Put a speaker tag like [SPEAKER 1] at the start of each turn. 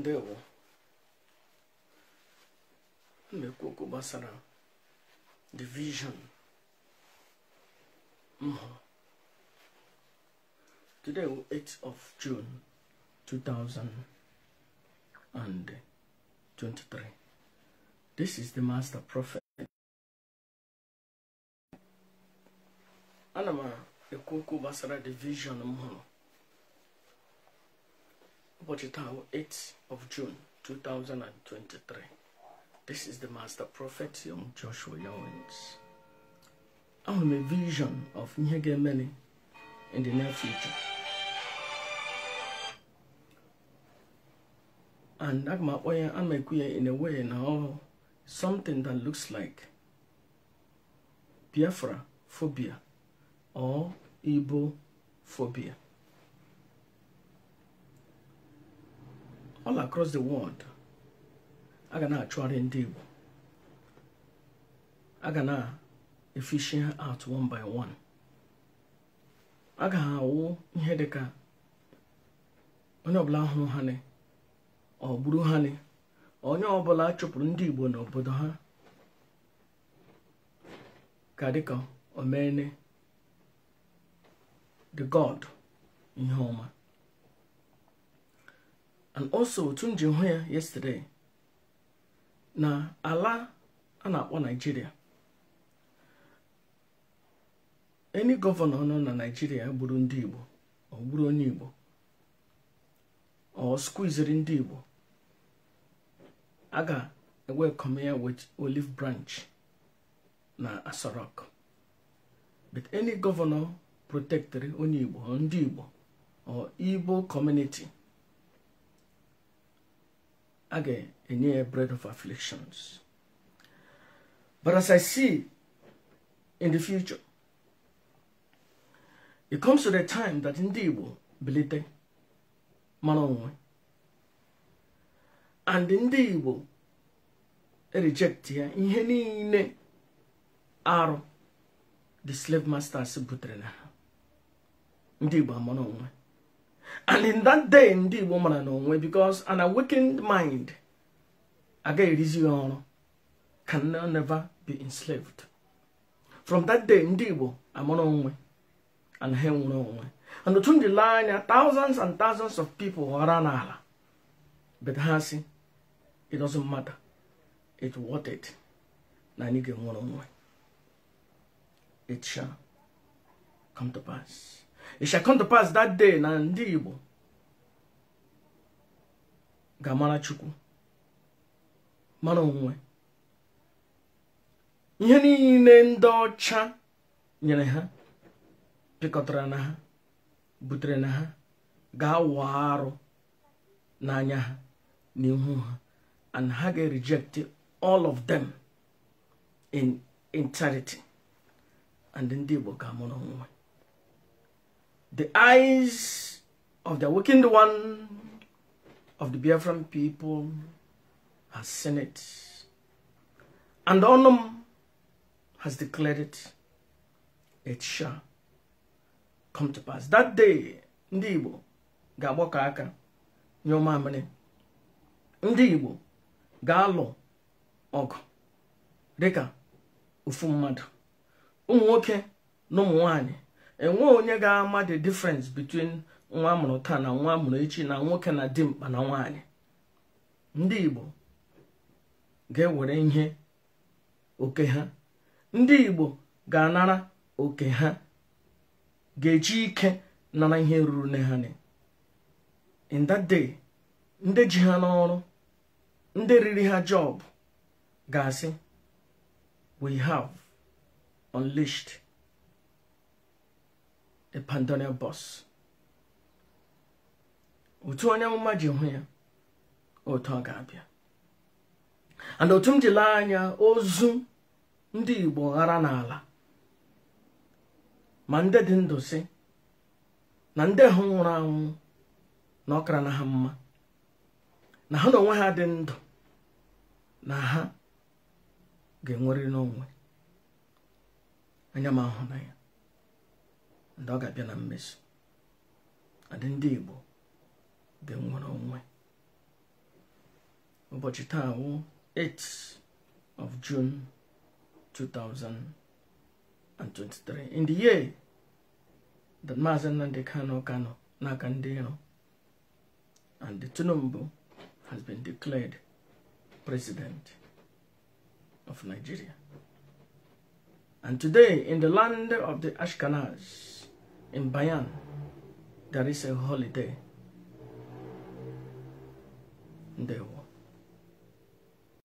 [SPEAKER 1] ndewo mmekwu okwu gbasara division vision mhụ today bụ 8th of June 2023 this is the master prophet ana m ekwu okwu gbasara the vision m But it's 8th of June 2023. This is the master prophet young Joshua Yowens. I'm a vision of Nyegemene in the near future. And I'm in a way now something that looks like Biafra phobia or Igbo phobia. all across the world a ga na-achụgharị ndị Igbo a ga na-efishi ha out one by one a ga awụ ihe dị ka onye ọbụla hụrụ ha ọ onye ọbụla chụpụrụ ndị Igbo n'obodo ha ka dịka omene the god ihe ọma and also otu m ji hụ ya yesterday na ala a na-akpọ Naịjirịa any gọvanọ nọ na nigeria gburu ndị Igbo ọ gburu onye Igbo ọ skuiziri ndị Igbo a ga-ewekọm ya with olive branch na asorok but any governor protektịrị onye Igbo ndị Igbo or Igbo community again a near bread of afflictions. But as I see in the future, it comes to the time that indeed will belite manonwe. And indeed will reject here ihe niile arụ the slave masters butrena. na ha. and in that day ndị igbo mara n'onwe because an awakened mind aga erizi ọrụ can never be enslaved from that day ndị igbo amara onwe and ha nwere onwe eh. and otu ndị lee anya thousands and thousands of people ghọrọ n'ala but ha si it doesn't matter it worth it na anyị ga-enwere onwe it shall come to pass It shall come to pass that day na ndị Igbo ga-amara Chukwu mara onwe ihe niile ndị ọcha nyere ha pịkọtara na ha butere na ha ga-awụ arụ n'anya ha n'ihu ha and ha ga-reject all of them in entirety and ndị Igbo ga-amụrụ onwe The eyes of the awakened one of the Biafran people has seen it. And Onum has declared it. It shall come to pass. That day, ndibo, gabo kaka, agbako ndibo, galo, ụmụamịrị. Ndị Igbo ga-alụ ọgụ enwe onye ga-ama the difference between nwa amụrụ taa na nwa amụrụ echi na nwoke na dimkpa na nwaanyị ndị igbo ga-ewere ihe oke ha ndị igbo ga-anara oke ha ga-eji ike nara ihe ruru nne ha in that day ndị ji ha n'ọrụ ndị riri ha job ga-asị we have unleashed the otu onye amụma ji hụ ya otu ọ ga-abịa and otu m jile anya ozu ndị igbo ghara n'ala ma ndị dị ndụ si na ndị hụ nwụrụ anwụ na ọkara na ha mma na ha na onwe ha dị ndụ na ha ga-enwerịrị n'onwe anya m ahụ na ya ndị ọ ga-abịa na mmezu adị ndị Igbo dị nwere onwe ụbọchị taa wụ 8 of June 2023 in the year that Maazị Nnamdi Kano Kanu n'aka ndị iro and the Tinubu has been declared president of Nigeria. And today, in the land of the Ashkenaz, in Bayan, there is a holiday. There